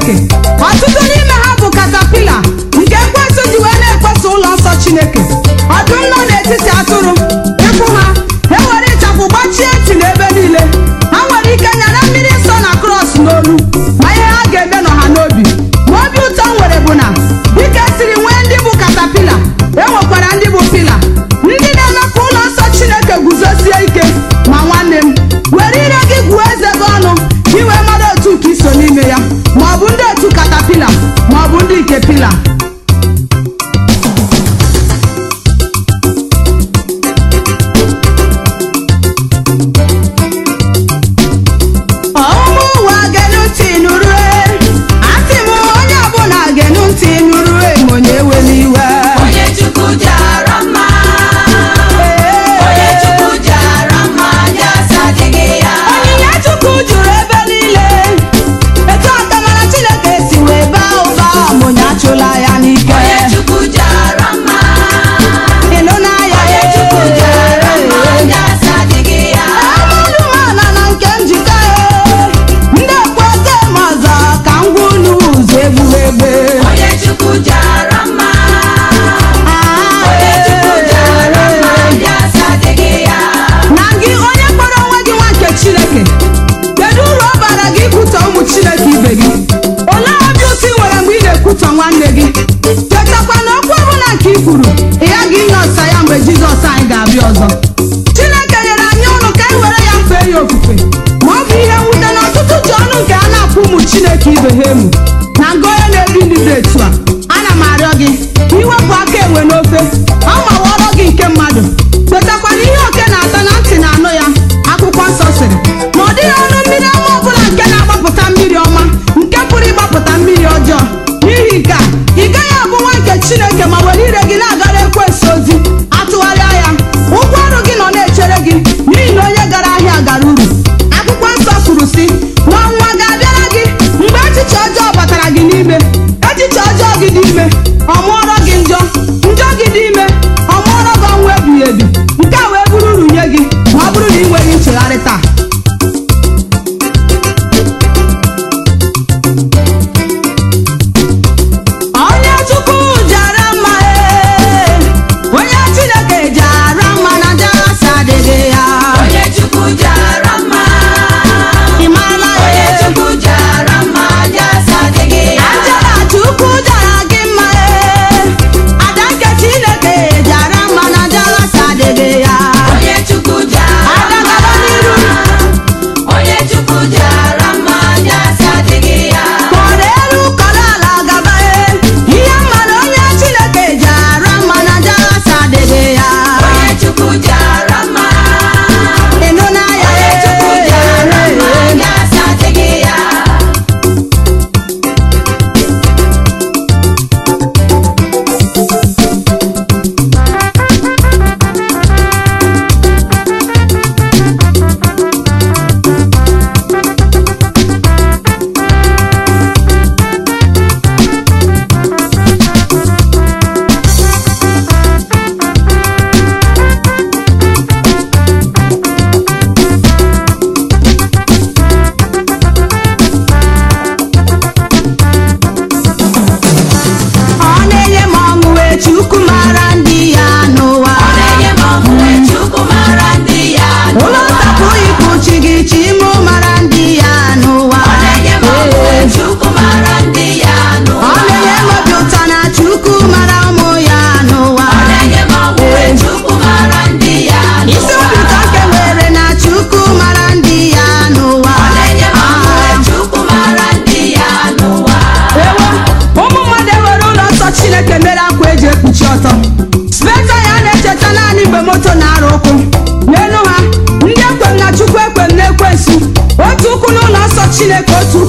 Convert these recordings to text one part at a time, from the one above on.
Cheque. ya maọbụ ndị otu katapila maọbụ ndị nke pila chineke otu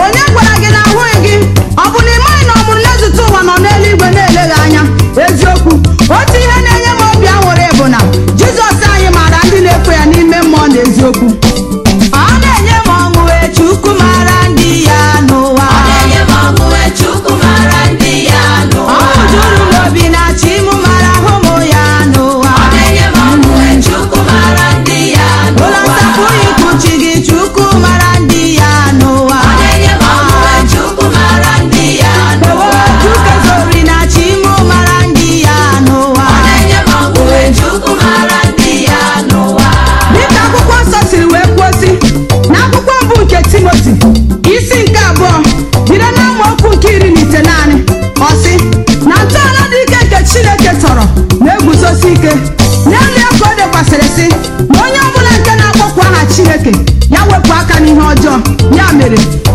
onye ọjọọ ya mere